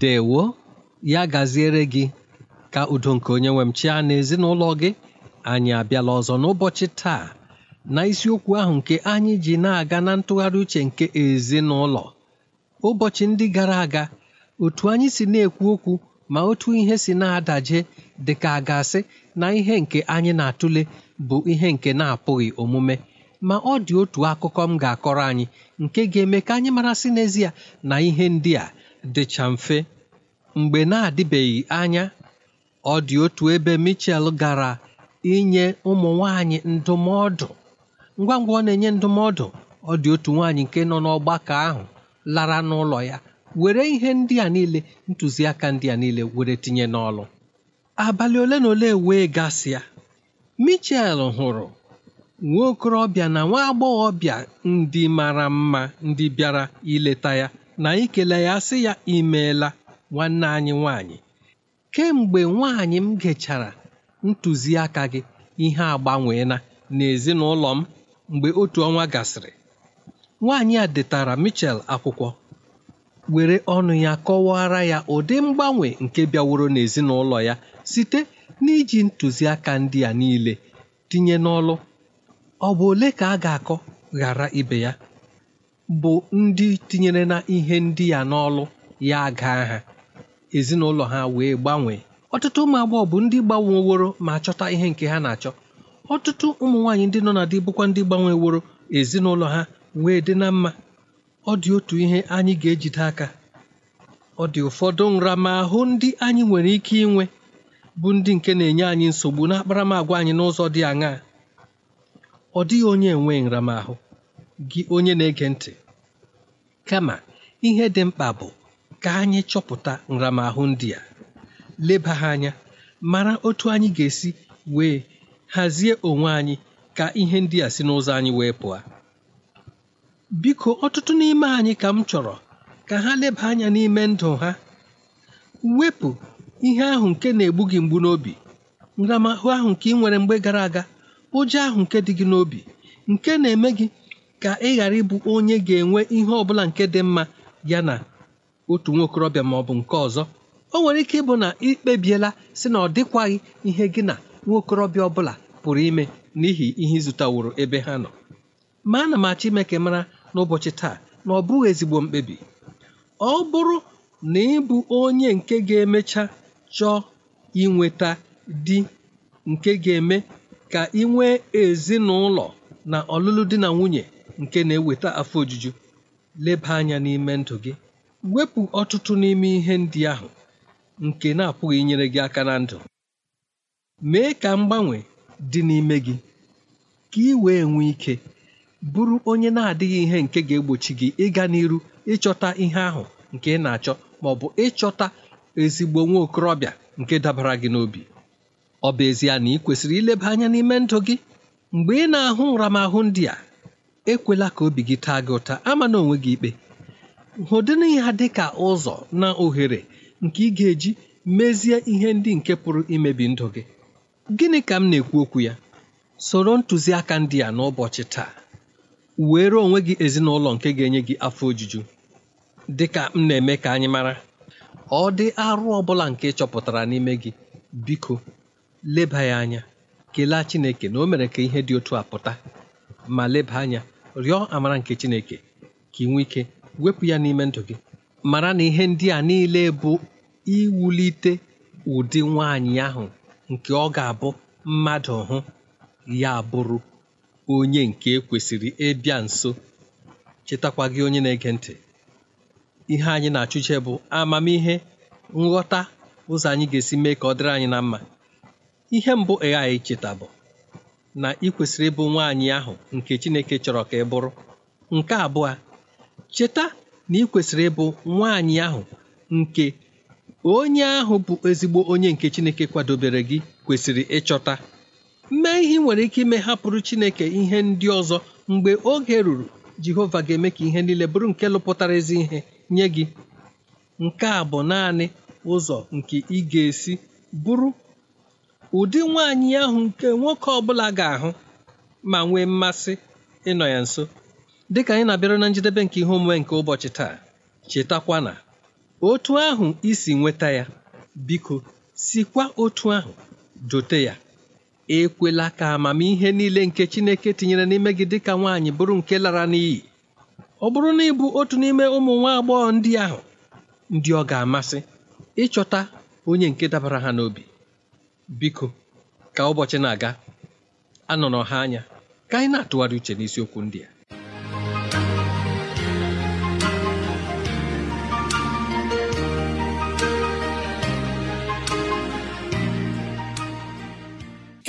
ndewo ya gaziere gị ka udo nke onye nwe m na ezinụlọ gị anyị abịala ọzọ n'ụbọchị taa na isiokwu ahụ nke anyị ji na-aga na ntụgharị uche nke ezinụlọ ụbọchị ndị gara aga otu anyị si na-ekwu okwu ma otu ihe si na-adaje dị ka a ga-asị na ihe nke anyị na-atụle bụ ihe nke na-apụghị omume ma ọ dị otu akụkọ m ga-akọrọ anyị nke ga-eme ka anyị mara sị n'ezie na ihe ndị a dịcha mfe mgbe na-adịbeghị anya ọ dị otu ebe michel gara inye ụmụ nwanyị ndụmọdụ ngwa ngwa ọ na-enye ndụmọdụ ọ dị otu nwaanyị nke nọ n'ọgbakọ ahụ lara n'ụlọ ya were ihe ndị a niile ntụziaka ndị a niile were tinye n'ọlụ abalị ole na ole wee gasịa michel hụrụ nwa okorobịa na nwa agbọghọbịa ndị mara mma ndị bịara ileta ya na anyị ya sị ya imeela nwanne anyị nwanyị kemgbe nwaanyị m gechara ntụziaka gị ihe agbanweela n'ezinụlọ m mgbe otu ọnwa gasịrị nwaanyị a detara Michel akwụkwọ were ọnụ ya kọwara ya ụdị mgbanwe nke bịaworo n'ezinụlọ ya site n'iji ntụziaka ndị a niile tinye n'ọlụ ọ bụ ole ka a ga-akọ ghara ibe ya bụ ndị tinyere na ihe ndị ya n'ọlụ ya aga ha ezinụlọ ha wee gbanwee ọtụtụ ụmụ agbọghọ bụ ndị gbanweworo ma chọta ihe nke ha na-achọ ọtụtụ ụmụ nwaanyị ndị nọ na di bụkwa ndị gbanweworo ezinụlọ ha wee dị na mma ọ dị otu ihe anyị ga-ejide aka ọ dị ụfọdụ nramahụ ndị anyị nwere ike inwe bụ ndị nke na-enye anyị nsogbu na akparamagwa anyị n'ụzọ dị aṅaa ọ dịghị onye enwe nramahụ gị onye na-ege ntị kama ihe dị mkpa bụ ka anyị chọpụta nramahụ ndị a leba ha anya mara otu anyị ga-esi wee hazie onwe anyị ka ihe ndị a si n'ụzọ anyị wee pụọ biko ọtụtụ n'ime anyị ka m chọrọ ka ha leba anya n'ime ndụ ha wepụ ihe ahụ nke na-egbu gị mgbu n'obi nramahụ ahụ nke ị nwere mgbe gara aga ụjọ ahụ nke dị gị n'obi nke na-eme gị ka ị ghara ịbụ onye ga-enwe ihe ọ bụla nke dị mma ya na otu nwa okorobịa ma ọ bụ nke ọzọ o nwere ike ịbụ na ịkpebiela si na ọ dịkwaghị ihe gị na nwa okorobịa pụrụ ime n'ihi ihe ịzụtaworo ebe ha nọ ma ana m achọ ime ka mara n'ụbọchị taa na ọ bụghị ezigbo mkpebi ọ bụrụ na ịbụ onye nke ga-emecha chọọ inweta di nke ga-eme ka ị nwee ezinụlọ na ọlụlụ di na nwunye nke na-eweta afọ ojuju leba anya n'ime ndụ gị wepụ ọtụtụ n'ime ihe ndị ahụ nke na-apụghị inyere gị aka na ndụ mee ka mgbanwe dị n'ime gị ka ị wee nwee ike bụrụ onye na-adịghị ihe nke ga-egbochi gị ịga n'iru ịchọta ihe ahụ nke ị na-achọ ma ọ bụ ịchọta ezigbo nwa okorobịa nke dabara gị n'obi ọ bụ ezie na ị kwesịrị ileba anya n'ime ndụ gị mgbe ị na-ahụ nramahụ ndị a ekwela ka obi gị taa gị ụta ama na onwe gị ikpe hụdịrị ya dị ka ụzọ na ohere nke ị ga-eji mezie ihe ndị nke pụrụ imebi ndụ gị gịnị ka m na-ekwu okwu ya soro ntụziaka ndị a n'ụbọchị taa were onwe gị ezinụlọ nke ga-enye gị afọ ojuju dị ka m na-eme ka anyị mara ọ dị arụ ọ bụla nke ị chọpụtara n'ime gị biko leba ya anya kelee Chineke na o mere ka ihe dị otu a pụta ma leba anya rịọ amara nke Chineke ka ị nwee ike wepụ ya n'ime ndụ gị mara na ihe ndị a niile bụ iwulite ụdị nwaanyị ahụ nke ọ ga-abụ mmadụ hụ ya bụrụ onye nke e kwesịrị ịbịa nso chetakwa gị onye na-ege ntị ihe anyị na-achụche bụ amamihe nghọta ụzọ anyị ga-esi mee ka ọ dịrị anyị na mma ihe mbụ AI cheta bụ na ị kwesịrị ịbụ nwaanyị ahụ nke Chineke chọrọ ka ị bụrụ nke abụọ cheta na ị kwesịrị ịbụ nwaanyị ahụ nke onye ahụ bụ ezigbo onye nke Chineke kwadobere gị kwesịrị ịchọta mee ihe ị nwere ike ime hapụrụ Chineke ihe ndị ọzọ mgbe oge ruru Jehova ga-eme ka ihe niile bụrụ nke lụpụtara ezi ihe nye gị nke a bụ naanị ụzọ nke ị ga-esi bụrụ ụdị nwaanyị ahụ nke nwoke ọbụla ga-ahụ ma nwee mmasị ịnọ ya nso dịka anyị na-abịara na njedebe nke ihe omume nke ụbọchị taa chetakwa na otu ahụ isi nweta ya biko sikwa otu ahụ jote ya ekwela ka amamihe niile nke Chineke tinyere n'ime gị dịka nwaanyị bụrụ nke lara n'iyi ọ bụrụ na ị otu n'ime ụmụ nwa agbọghọ ndị ahụ ndị ọ ga-amasị ịchọta onye nke dabara ha n'obi Biko, ka ụbọchị na-aga anọrọ ha anya ka anyị na-atụgharị uche n'isiokwu ndị a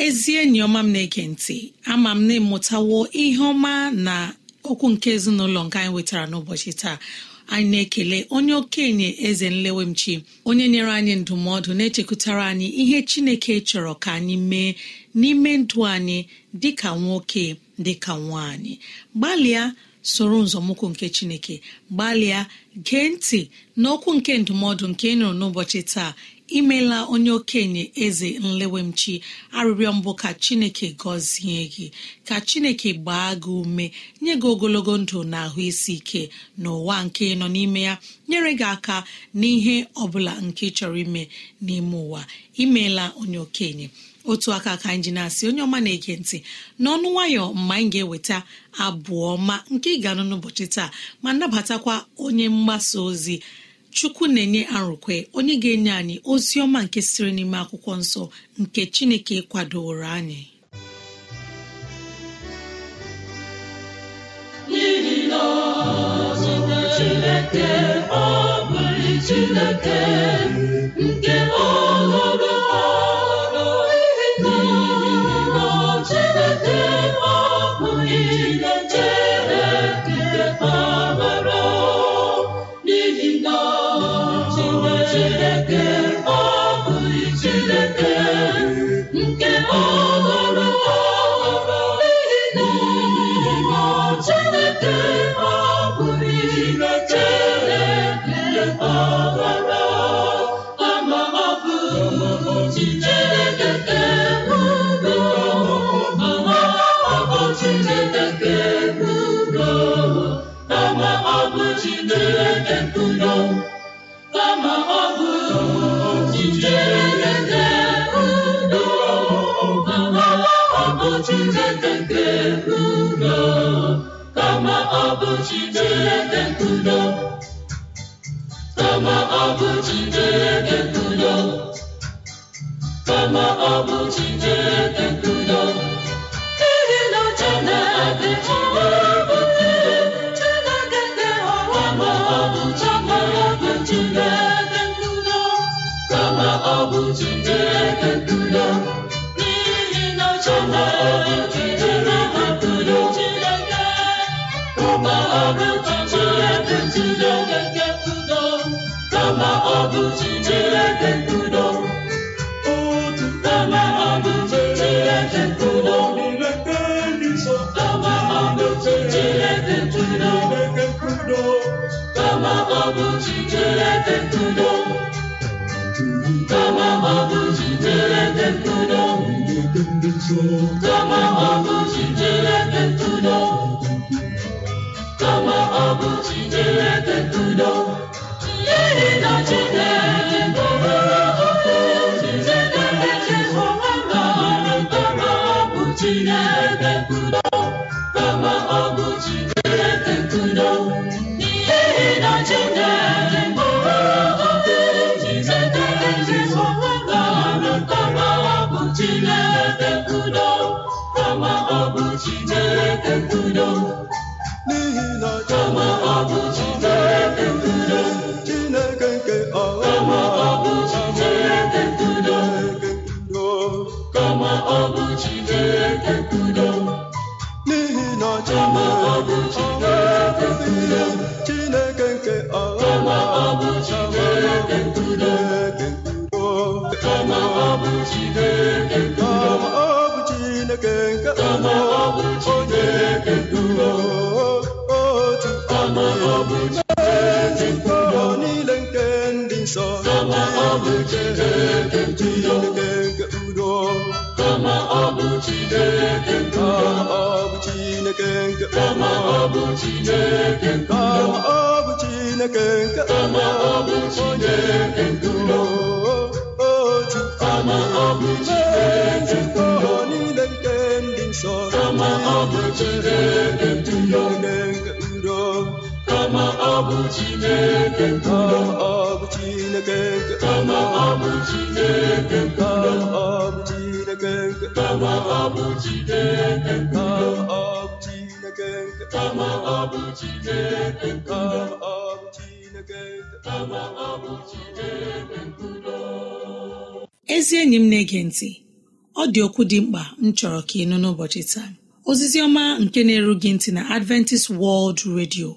ezi enyi ọma m na-ege ntị ama m na ịmụtawo ihe ọma na okwu nke ezinụlọ nke anyị nwetara n'ụbọchị taa anyị na-ekele onye okenye eze nlewemchi onye nyere anyị ndụmọdụ na-echekwutara anyị ihe chineke chọrọ ka anyị mee n'ime ndụ anyị ka nwoke dị ka nwaanyị gbalịa soro nzọmụkwụ nke chineke gbalịa gee ntị n'okwu nke ndụmọdụ nke ị nụrụ n'ụbọchị taa imela onye okenye eze nlewemchi arịrịọ mbụ ka chineke gọzie gị ka chineke gbaa gị ume nye gị ogologo ndụ na ahụ isi ike n'ụwa nke nọ n'ime ya nyere gị aka n'ihe ọbụla nke chọrọ ime n'ime ụwa imeela onye okenye otu aka ka anyị ji na-asị onye ọma na-ege ntị n'ọnụ nwayọ mgbe anyị ga-eweta abụ ọma nke ị ga-anụ n'ụbọchị taa ma nabatakwa onye mgbasa ozi chukwu na-enye arụkwe onye ga-enye anyị ozi ọma nke siri n'ime akwụkwọ nsọ nke chineke kwadoro anyị chineke ọ bụrụ chineke nke ọhụrụ ọhụrụ n'ihi na chineke ọ bụrụ chineke kama ọ bụ dị ndudo bụ Chineke nkudo otuama ọ bụ Chineke nkudo kama ọ bụ Chineke nkudo kama ọ bụ kama ọ kama ọ bụ Chineke nkudo ego onye eduo otu ezigbo niile nke ndị nsọ Chineke udo ọ bụ Chineke nke ọ bụ Chineke nke onye eduo otu ezigbo Ka bụ Chineke ndudo kama ọ bụ Chineke ọ bụ Chineke Chineke ọ ezi enyi m na-ege ntị ọ dị okwu dị mkpa m chọrọ ka ị nụ n'ụbọchị taa ozizi ọma nke na-eru ntị na adventist world radio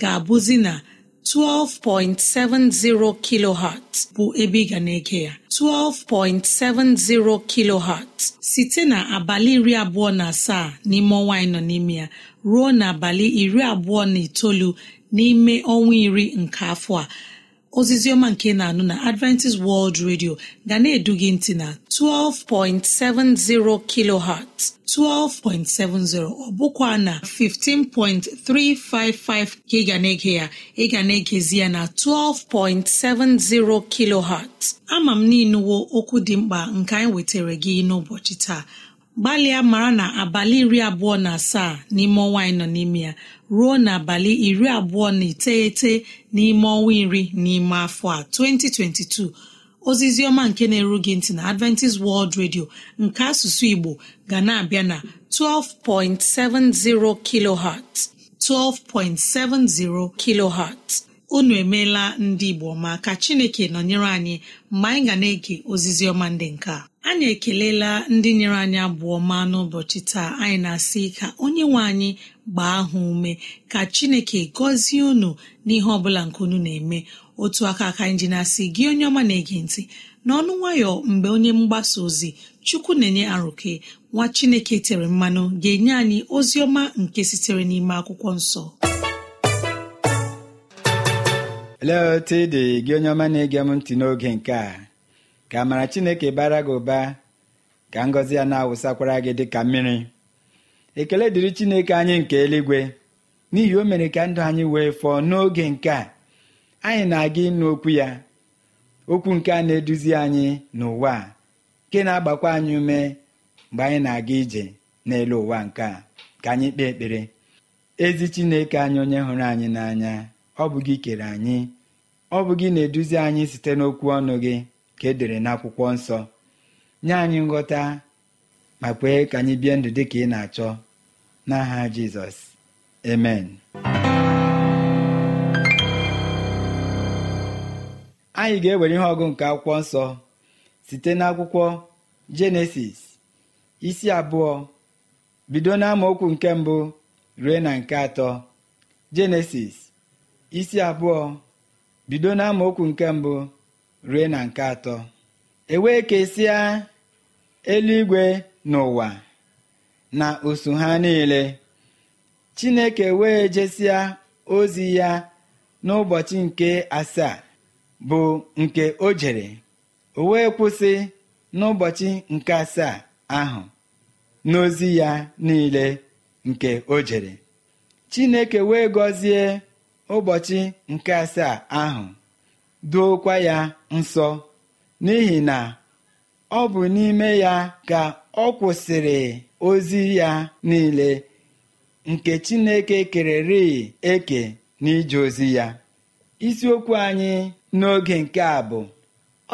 ga-abụzi na 12.70 kilohertz bụ ebe ị ga na-ege ya 12.70 kilohertz site na abalị iri abụọ na asaa n'ime ọnwa anyị nọ n'ime ya ruo na abalị iri abụọ na itoolu n'ime ọnwa iri nke afọ a ozizi ọma nke na-anụ na adventist world radio ga na-edu gị ntị na 12.70 kilohertz 12.70 ọ bụkwa na 15.355 ka ị ga na-ege ya ị ga na-egezi ya na 12.70 kilohertz ama m n'inuwo okwu dị mkpa nke anyị wetara gị n'ụbọchị taa gbalịa maara na abalị iri abụọ na asaa n'ime ọnwa anyị nọ n'ime ya ruo n'abalị iri abụọ na iteghete n'ime ọnwa iri n'ime afọ a 2022 ozizi ọma nke na-eru gị ntị na Adventist World Radio nke asụsụ Igbo ga na-abịa na 12.70 kilohertz 12.70 kilohertz unu emeela ndị igbo ma ka chineke nọnyere anyị mgbe anyị ga na-ege ozizi ọma ndị nke a. anyị ekelela ndị nyere anyị abụọ ma n'ụbọchị taa anyị na-asị ka onye nwe anyị gbaa ahụ ume ka chineke gọzie unu n'ihe ọbụla nke unu na-eme otu aka aka anyị ji na-asị gị onye ọma na-ege ntị n'ọnụ nwayọ mgbe onye mgbasa ozi chukwu na-enye arụke nwa chineke tere mmanụ ga-enye anyị ozi ọma nke sitere n'ime akwụkwọ nsọ lee otu ị dị gị onye ọma na-ege m ntị n'oge nke a ka amara chineke bara gị ụba ka ngọzi ya na-awụsakwara gị dị ka mmiri ekele dịrị chineke anyị nke eluigwe n'ihi o mere ka ndụ anyị wee fọọ n'oge nke a anyị na-aga ịnụ okwu ya okwu nke a na-eduzi anyị n'ụwa nke na-agbakwa anyị ume mgbe anyị na-aga ije n'elu ụwa nke a ka anyị kpee ekpere ezi chineke anyị onye hụrụ anyị n'anya ọ bụ gị kere anyị ọ bụ gị na-eduzi anyị site n'okwu ọnụ gị ka e dere n'akwụkwọ nsọ nye anyị nghọta ma kwee ka anyị bie ndụ dị ka ị na-achọ n'aha jizọs amen anyị ga-ewere ihe ọgụ nke akwụkwọ nsọ site n'akwụkwọ jenesis isi abụọ bido n'amaokwu nke mbụ rue na nke atọ jenesis isi abụọ bido na nke mbụ rue na nke atọ ewee kesịa eluigwe n'ụwa na osu ha niile chineke wee jesịa ozi ya n'ụbọchị nke asaa bụ nke o jere o wee kwụsị n'ụbọchị nke asaa ahụ n'ozi ya niile nke o jere chineke wee gọzie ụbọchị nke asaa ahụ duokwa ya nsọ n'ihi na ọ bụ n'ime ya ka ọ kwụsịrị ozi ya niile nke Chineke kererị eke n'ije ozi ya isiokwu anyị n'oge nke a bụ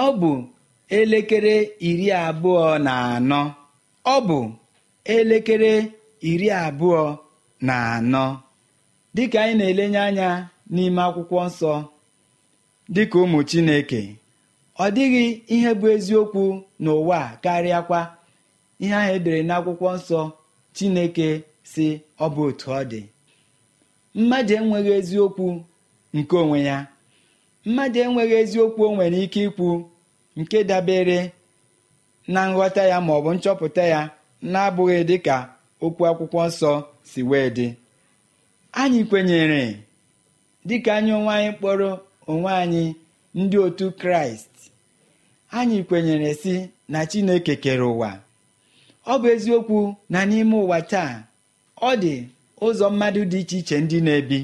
ọ bụ elekere iri abụọ na anọ ọ bụ elekere iri abụọ na anọ dịka anyị na-elenye anya n'ime akwụkwọ nsọ dịka ụmụ Chineke ọ dịghị ihe bụ eziokwu n'ụwa karịakwa ihe ahụ edere n'akwụkwọ nsọ Chineke si ọ bụ otu ọ dị mmadụ enweghị eziokwu nke onwe ya mmadụ enweghị eziokwu o nwere ike ikwu nke dabere na nghọta ya ma nchọpụta ya na-abụghị dịka okwu akwụkwọ nsọ si wee dị anyị kwenyere dị ka anyị onwe anyị kpọrọ onwe anyị ndị otu kraịst anyị kwenyere si na chineke kere ụwa ọ bụ eziokwu na n'ime ụwa taa ọ dị ụzọ mmadụ dị iche iche ndị na-ebi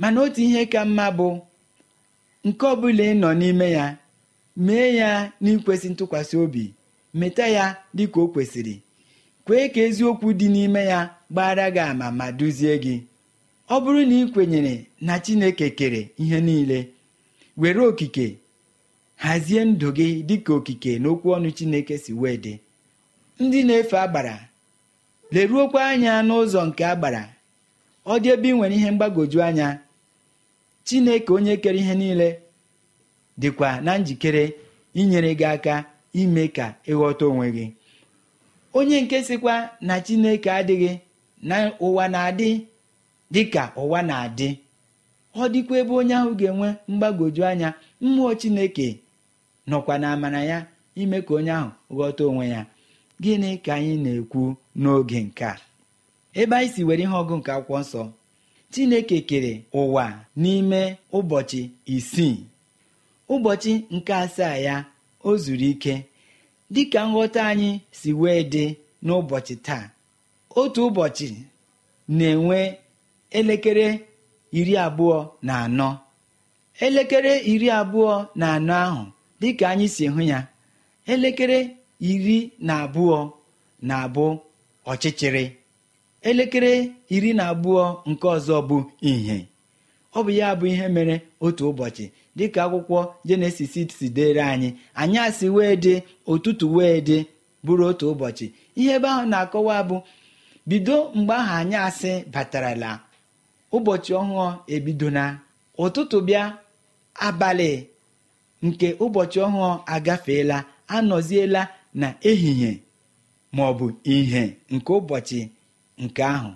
mana otu ihe ka mma bụ nke ọ bụla ị nọ n'ime ya mee ya n'ikwesị ntụkwasị obi meta ya dịka o kwesịrị kwee ka eziokwu dị n'ime ya gbara gị ama ma duzie gị ọ bụrụ na ị kwenyere na chineke kere ihe niile were okike hazie ndụ gị dịka okike na okwu ọnụ chineke si wee dị ndị na-efe agbara leruokwa anya n'ụzọ nke agbara ọ dị ebe ị nwere ihe mgbagwoju anya chineke onye kere ihe niile dịkwa na njikere inyere gị aka ime ka ịghọta onwe gị onye nke sịkwa na chineke adịghị na ụwa na-adị dịka ụwa na-adị ọ dịkwa ebe onye ahụ ga-enwe mgbagwoju anya mmụọ chineke nọkwa na amara ya ime ka onye ahụ ghọta onwe ya gịnị ka anyị na-ekwu n'oge nke a ebe anyị si were ihe ọgụ nke akwụkwọ nsọ chineke kere ụwa n'ime ụbọchị isii ụbọchị nke asaa ya o zuru ike dịka nghọta anyị si wee dị n'ụbọchị taa otu ụbọchị na-enwe elekere iri abụọ na anọ elekere iri abụọ na anọ ahụ dịka anyị si hụ ya elekere iri na abụọ na-abụ ọchịchịrị elekere iri na abụọ nke ọzọ bụ ìhè ọ bụ ya bụ ihe mere otu ụbọchị dịka akwụkwọ jenesis si dere anyị anyị asị wee dị ụtụtụ wee dị bụrụ otu ụbọchị ihe ebe ahụ na-akọwa bụ bido mgbe ahụ anyị asị batarala ụbọchị ọhụụ ebido na ụtụtụ bịa abalị nke ụbọchị ọhụụ agafeela anọziela na ehihie ma ọ bụ ihe nke ụbọchị nke ahụ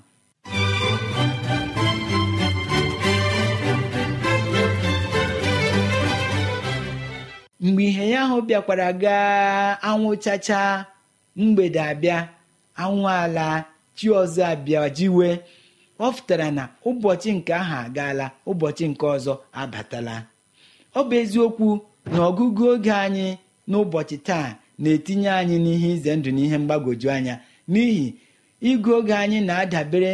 mgbe ihe ya ahụ bịakwara gaa anwụ chacha mgbede abịa anwụ ala chi ọzọ abịa ọ pụtara na ụbọchị nke ahụ agaala ụbọchị nke ọzọ abatala ọ bụ eziokwu na ọgụgụ oge anyị n'ụbọchị taa na-etinye anyị n'ihe ize ndụ na ihe mgbagwoju anya n'ihi ịgụ oge anyị na-adabere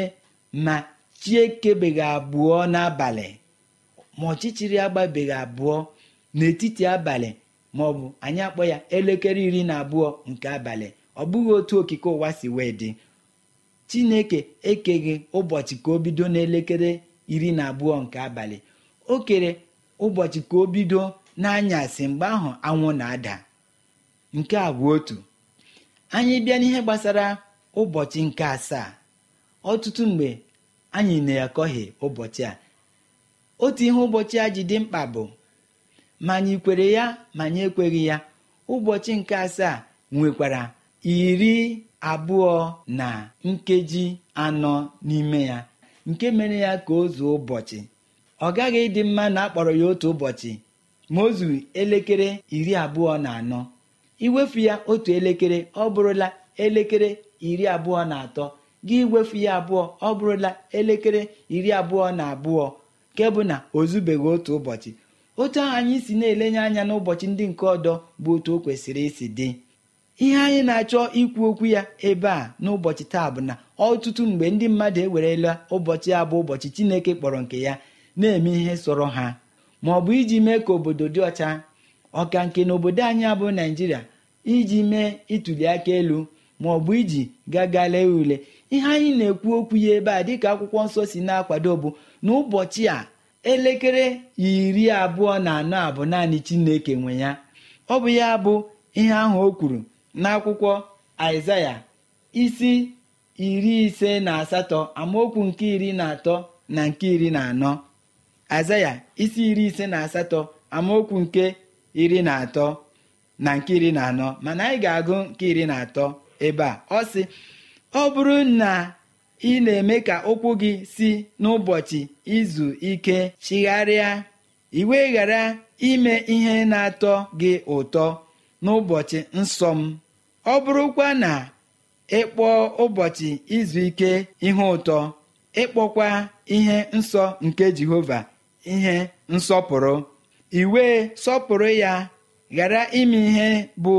ma chiekebeghị abụọ n'abalị ma ọchịchịrị agbabeghị abụọ n'etiti abalị ma ọ bụ anyị akpọ ya elekere iri na abụọ nke abalị ọ bụghị otu okike ụwa si wee dị chineke ekeghị ụbọchị ka o bido n'elekere iri na abụọ nke abalị o kere ụbọchị ka o bido n'anyasị mgbe ahụ anwụ na-ada nke a bụ otu anyị bịa n'ihe gbasara ụbọchị nke asaa ọtụtụ mgbe anyị na-akọghị ụbọchị a otu ihe ụbọchị a ji dị mkpa bụ ma anyị kwere ya ma anyị ekweghị ya ụbọchị nke asaa nwekwara iri abụọ na nkeji anọ n'ime ya nke mere ya ka o zuo ụbọchị ọ gaghị ịdị mma na akpọrọ ya otu ụbọchị ma o zuru elekere iri abụọ na anọ iwefu ya otu elekere ọ bụrụla elekere iri abụọ na atọ gị iwefu ya abụọ ọ bụrụla elekere iri abụọ na abụọ nke bụ na o zubeghị otu ụbọchị otu ahụ anyị si na-elenye anya n'ụbọchị ndị nke ọdọ bụ otu o kwesịrị isi dị ihe anyị na-achọ ikwu okwu ya ebe a n'ụbọchị taa bụ na ọtụtụ mgbe ndị mmadụ ewerela ụbọchị a bụ ụbọchị chineke kpọrọ nke ya na-eme ihe sọrọ ha ma ọ bụ iji mee ka obodo dị ọcha ọka nke na obodo anyị abụ naijiria iji mee ituli aka elu ma ọ bụ iji gaga lee ule ihe anyị na-ekwu okwu ya ebe a dịka akwụkwọ nsọ si na-akwado bụ n'ụbọchị a elekere iri abụọ na anọ abụ naanị chineke nwe ya ọ bụ ya bụ ihe ahụ o kwuru n'akwụkwọ aịzaya isi iri ise na asatọ amaokwu nke iri na atọ na nke iri na anọ azaya isi iri ise na asatọ amaokwu nke iri na atọ na nke iri na anọ mana anyị ga-agụ nke iri na atọ ebe a ọ sị ọ bụrụ na ị na-eme ka ụkwụ gị si n'ụbọchị izu ike chigharịa iwe ghara ime ihe na-atọ gị ụtọ n'ụbọchị nsọ m ọ bụrụkwa na ịkpọ ụbọchị izu ike ihe ụtọ ịkpọkwa ihe nsọ nke jehova ihe nsọpụrụ iwe sọpụrụ ya ghara ime ihe bụ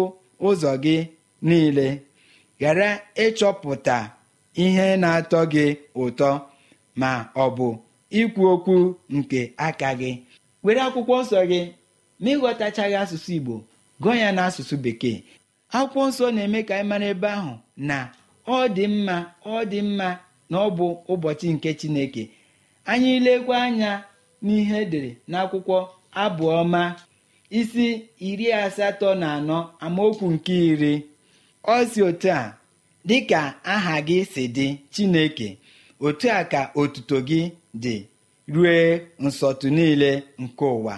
ụzọ gị niile ghara ịchọpụta ihe na-atọ gị ụtọ ma ọ bụ ikwu okwu nke aka gị were akwụkwọ nsọ gị ma ịghọtachaghị asụsụ igbo gụọ ya n'asụsụ bekee akwụkwọ nsọ na-eme ka anyị mara ebe ahụ na ọ dị mma ọ dị mma na ọ bụ ụbọchị nke chineke anyị lekwa anya n'ihe edere n'akwụkwọ abụọma isi iri asatọ na anọ amaokwu nke iri ọ si otu a "Dị ka aha gị si dị chineke otu a ka otuto gị dị rue nsọtụ niile nke ụwa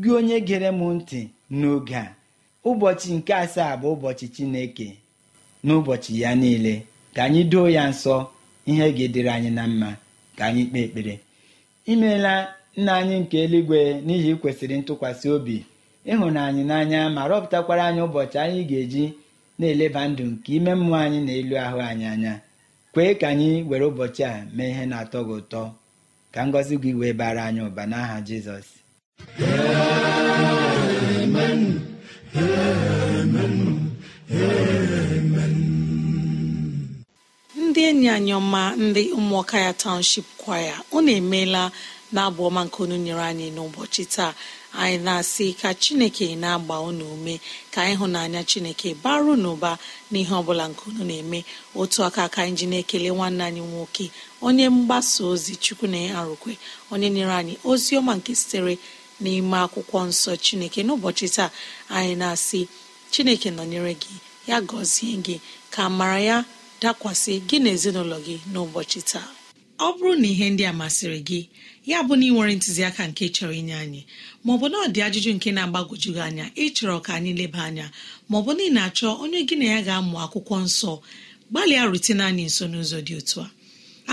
gị onye gere m ntị n'oge a ụbọchị nke asaa bụ ụbọchị chineke n'ụbọchị ya niile ka anyị doo ya nsọ ihe ga-edere anyị na mma ka anyị kpee ekpere imeela nna anyị nke eluigwe n'ihi kwesịrị ntụkwasị obi ịhụnanyị n'anya ma rọpụtakwara anyị ụbọchị anyị ga-eji na-eleba ndụ nke ime mmụọ anyị na elu ahụ anyị anya kwee ka anyị were ụbọchị a mee ihe na-atọ gị ụtọ ka ngọzi gị wee bara anyị ụba n'aha Jizọs ndị enyi anyị ọma ndị ụmụọka ya township kwaya unu emeela na abụ ọma nke unu nyere anyị n'ụbọchị taa anyị na-asị ka chineke na-agba unu ume ka ịhụnanya chineke baru n'ụba n'ihe ọbụla nke unu na-eme otu aka aka anyị ji na-ekele nwanne anyị nwoke onye mgbasa ozi chukwu na arụkwe onye nyere anyị ozi ọma nke sitere n'ime akwụkwọ nsọ chineke n'ụbọchị taa anyị na-asị chineke nọnyere gị ya gọzie gị ka mara ya dakwasị gị na ezinụlọ gị n'ụbọchị taa ọ bụrụ na ihe ndị a masịrị gị ya bụ na ị nwere ntụziaka nke chọrọ inye anyị maọbụ na ọ dị ajụjụ nke na-agbagwoju gị anya ịchọrọ ka anyị leba anya maọbụ na ị na-achọ onye gị na ya ga-amụ akwụkwọ nsọ gbalịa rutene anyị nso n'ụzọ dị otu a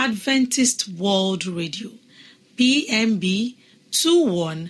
Adventist World Radio PMB 21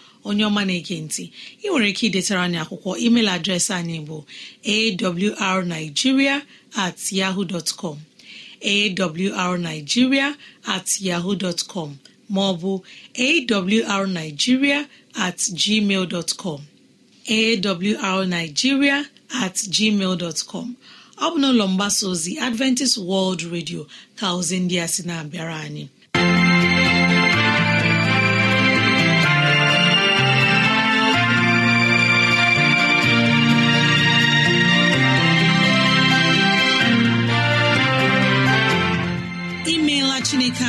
onye ọma na-ege ntị ị nwere ike idetara anyị akwụkwọ email adreesị anyị bụ awrnigeria at yahoo dot com awrnigeria at yahoo dot com ma ọ bụ awrnigeria at gmail dot com awrnigeria at gmail dot com ọ bụ n'ụlọ mgbasa ozi Adventist World Radio ka ozi ndị a sị na-abịara anyị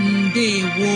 ndewo